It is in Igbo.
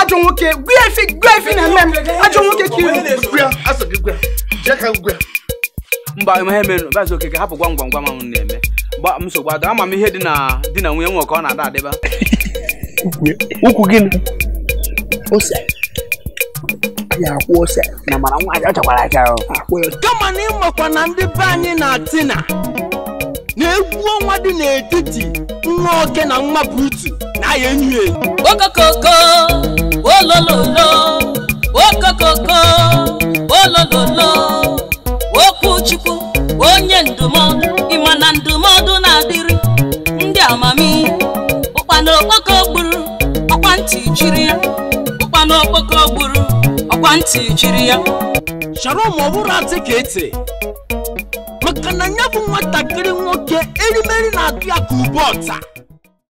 ajọ nwoke gwa efi gwa efi na mme m ajọ nwoke ka iwu mba ihe mere bazi okeke hapụ gwam gwam ma ọ na-eme gba m ihe dị na di nwunye ọ na-ada adịba nwaanyị ọ kama na ịmakwa na ndị be na na ọnwa dị n'etiti nwa na nwa butu na ya enyi ya okokoko olololo okokoko olololo okwu onye ndụmọdụ ịma na ndụmọdụ na-adịrị ndị amami ụkpa na okpoko gburu ọkwa ntị jiri ya ụkpa na okpoko gburu ọkwa ntị jiri ya chọrọ ma ọ bụrụ atị ka maka na ya bụ nwatakịrị nwoke erimeri na-atụ ya ka ube ọta